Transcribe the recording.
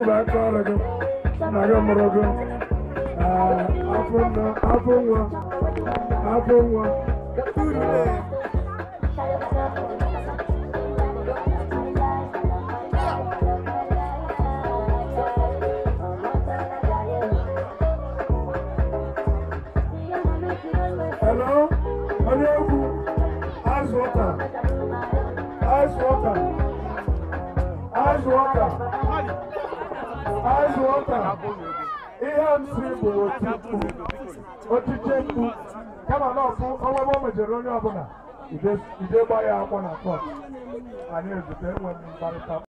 Hello, Hello, ice water, ice water, ice water. ice water ihe nsị bụ otikpu otiche mkpu kama na ọkụ ọnwa ma mejere onye ọbụla ide gbaa ya akwọ na kọt anyị ezute enweghị mkparịta